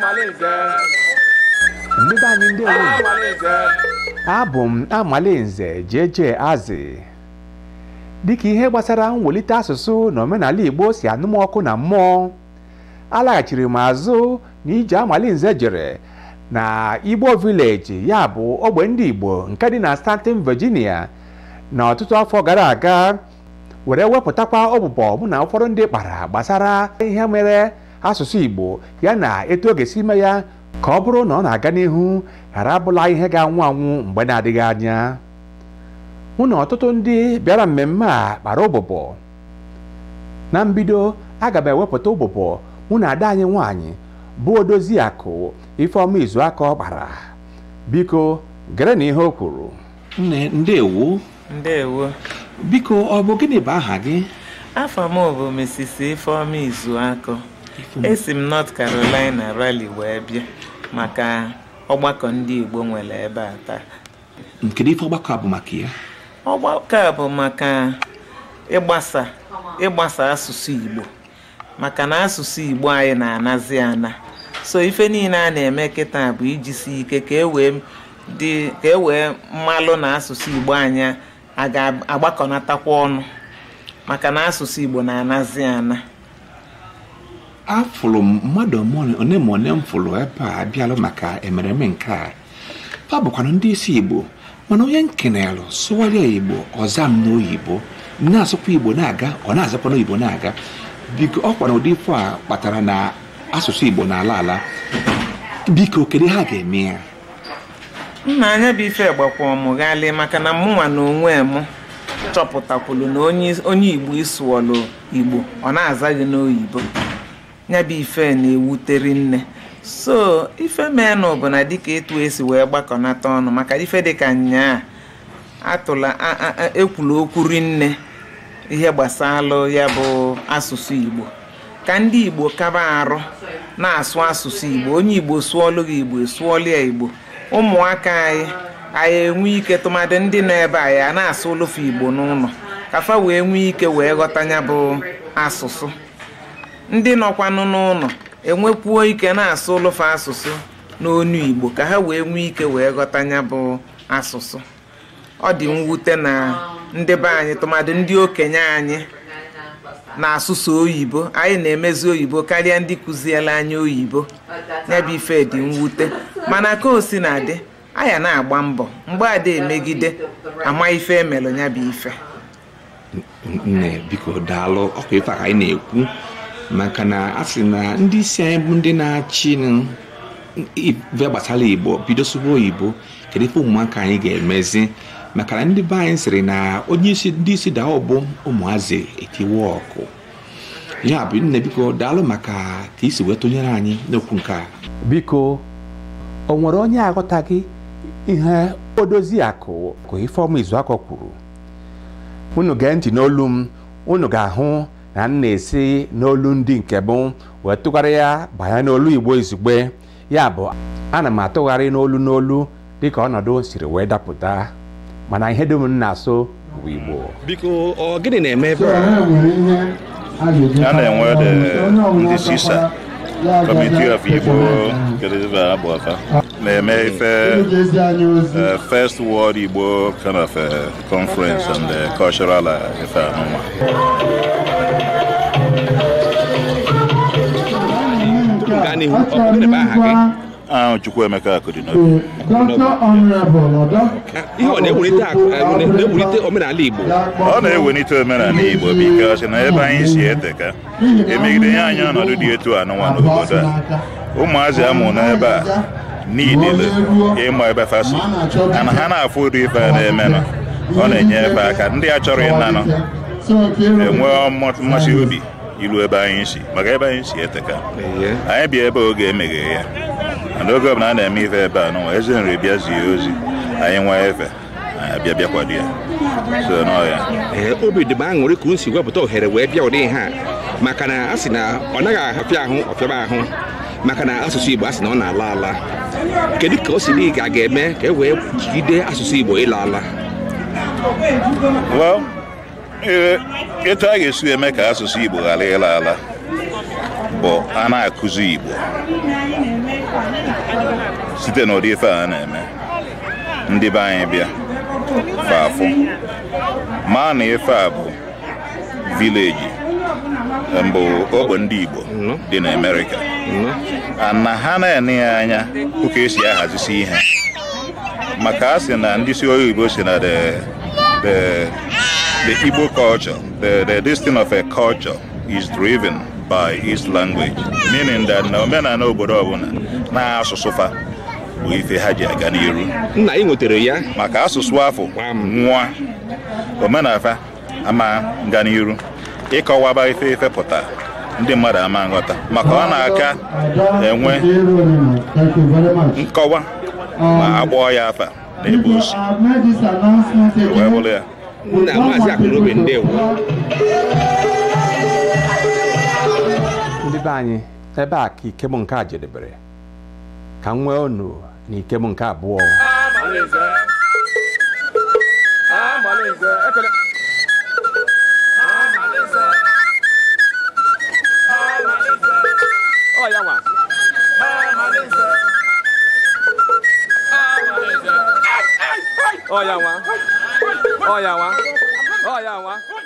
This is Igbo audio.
Malinze ah, anyị ndị anyị ah, abụ m Amalinze ah, jeje Azị dịka ihe gbasara mwelite asụsụ na omenala Igbo si anụmọkụ na mmụọ alaghachiri m azụ na ije nze jere na Igbo Village ya bụ ogbe ndị Igbo nke dị na Stanton Virginia na ọtụtụ afọ gara aga were wepụtakwa ọbụbọ mụ na ụfọdụ ndị kpara gbasara ihe mere asụsụ Igbo ya na etu ọ ga-esi ime ya ka ọ bụrụ na ọ na-aga n'ihu ghara abụla ihe ga-anwụ anwụ mgbe na-adịghị anya mụ na ọtụtụ ndị bịara mmemme a kpara ụbụbọ na mbido aga m ewepụta ụbụbọ mụ na ada anyị nwaanyị bụ odozi akụ Ifeọma Izuaka ọ kpara biko gere na ihe o kwuru ndewo biko ọ bụ gịnị bụ aha gị afọ m bụ Mrs. Ifeoma Izuakọ esi m North Carolina rali wee bịa maka ọgbakọ ndị Igbo nwere ebe a taa Nkedu ife ọgbakọ bụ maka ya ọgbakọ a bụ maka ịgbasa ịgbasa asụsụ Igbo maka na asụsụ Igbo anyị na-anazi ana so ife niile a na-eme kịta bụ ijisi ike ka e wee e na asụsụ Igbo anyị a ga-agbakọnatakwa ọnụ maka na asụsụ Igbo na-anazi ana afụrụ mmadụ one ma one m fụrụ ebe a bịalụ maka emereme nke a ọ bụkwana ndị isi Igbo mana onye nkenelụ sụwarịa Igbo ọza m n'oyibo na-asụkwa Igbo na-aga ọ na-azakwa n'oyibo na-aga biko ọ kwara ụdị ifo a kpatara na asụsụ Igbo na ala ala biko kedu ha ga-eme ya nna anya bụ ife gbakwa maka na mụnwa na onwe m chọpụtakwulu na onye igbo ịsụọlụ igbo ọ na-aza gị n'oyibo ya bụ ife na ewutere nne so ife menụ bụ na dịka etu esi wee gbakọnata ọnụ maka ife dịka nyaa atụla ekwulu okwu rinne ihe gbasalụ ya bụ asụsụ igbo ka ndị igbo kaba arụ na-asụ asụsụ igbo onye igbo sụọlụ gị igbo sụọlụ ya igbo ụmụaka anyị anyị enwe ike tụmadị ndị nọ ebe anyị na-asụ igbo n'ụlọ kafa wee nwee ike wee ghọta ya bụ asụsụ ndị nọkwanụ n'ụlọ enwekwuo ike na-asụ olufu asụsụ n'onu igbo ka ha wee nwee ike wee ghọta ya bụ asụsụ ọ dị mwute na ndị be anyị tụmadị ndị okenye anyị na-asụsụ oyibo anyị na-emezi oyibo karịa ndị kụziela anyị oyibo n'ebe ife dị mwute mana ka o si na-adị anya na-agba mbọ mgbe ada emegide ama ife emelụ ya bụ ife nne biko daalụ ọkwa ife ka anyị na-ekwu maka na a sị na ndị isi anyị bụ ndị na-achị ife gbasara igbo bido sụba oyibo kedu ife ụmụaka anyị ga-emezi maka na ndị be anyị sịrị na onye isi ndị isi daa ọbụ ụmụazị etiwe ọkụ ya bụ nne biko daalụ maka ka isi wee tụnyere anyị n'okwu nke a biko o nwere onye aghọtaghị ihe odozi akụ ka Ifeọma Izuakọ kwuru unu gee ntị n'olu m unu ga-ahụ na m na-esi n'olu ndị nke bụ wee tụgharị ya banye n'olu Igbo izugbe ya bụ ana m atụgharị n'olu n'olu dịka ọnọdụ siri wee dapụta mana ihe dum m na-asụ bụ Igbo biko ọ gịnị na-eme ebe a na-enwe ndị sisa Committee of Igbo na-eme ife eh, First World Igbo kind of eh, conference and cultural eh, ife anụnwa gaa n'ihu ọ bụ gịnị bụ aha gị ahụ Chukwuemeka Akụdịnobi ihe ọ na-ewulite omenala Igbo ọ na-ewelite omenala Igbo bikọsi na eh, eh, ebe anyị si eteka emegide ya anya ọnọdụ dị etu anụnwa n'obodo a ụmụazị amụ n'ebe a niile ịma ebe fasi ana ha na-afụ ụdị ife a na-emenụ ọ na-enye ebe aka ndị a chọrọ ịnanụ enwee mmasị obi ilu ebe anyị si maka ebe anyị si eteka anyị bịa ebe oge emeghe ya n'oge ọbụla a na-eme ife ebe a n'ụwa eze nri bịa zie ozi anyị nwa efe bịa bịakwado ya so n'ọhịa ee eh, obi dị m aṅụrị ka unu si wepụta ohere wee bịa ụdị ha maka na a sị na ọ naghị afịa ahụ ọfịaba ahụ maka na asụsụ igbo a e sị na ọ na-ala ala kedu eh, ka o si dị ka a ga-eme ka e wee jide asụsụ igbo ịla ala etu a ga-esi eme ka asụsụ igbo ghara ịla ala bụ a na-akụzi igbo site n'ụdị ife a na-eme ndị be anyị bịa faafụ maa na ife a bụ vileji mbụ ogbe ndị Igbo dị na Amerịka na ha na-ene ya anya ụka esi ahazisi ihe maka a sị na ndị si Igbo si na the the Igbo culture the the destiny of a culture is driven by its language meaning that na omenala obodo ọbụla n'asụsụ fa bụ ife ha ji aga n'iru nna ị nwetara ya maka asụsụ afọ nwa omenafa ama nga n'iru ịkọwaba ife ife pụta ndị mmadụ ama nghọta maka ọ na-aka enwe nkọwa ma akpọọ ya afa na-ebu osi wee bụrụ ya ndị be anyị ebe a ka ike bụ nke a jedebere ka m nwee n'ike m nke abụọ Olha lá. Olha lá.